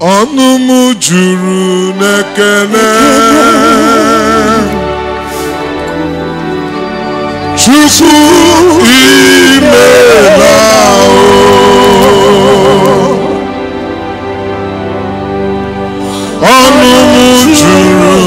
ọnụ m juru n'ekele chukwu imela ọnụ m juru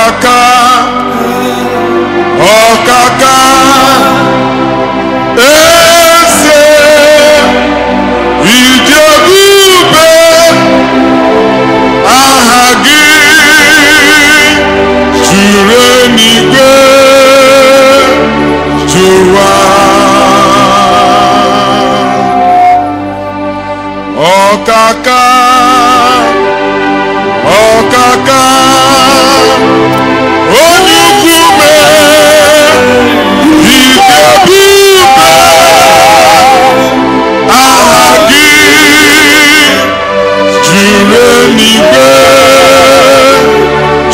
Kaka, ọ̀kàkà ọ̀kàkà èsè ìjẹ́bùbè aha gị juru n'igwe jụwa ọ̀kàkà.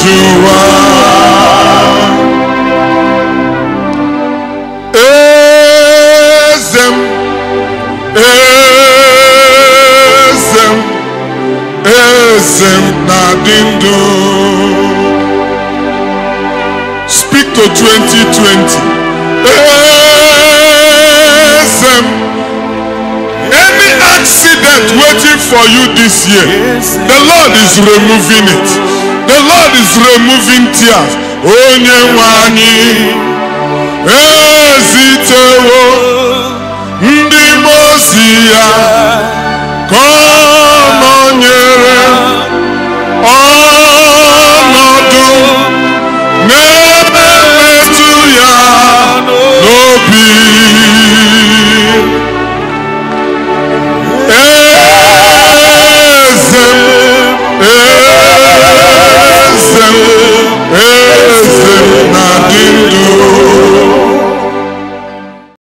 Yeshua. Ezem, ezem, ezem nadindu. Speak to 2020. Ezem. Any accident waiting for you this year, the Lord is removing it. The Lord is removing tears. Onye oh, nwe anyị.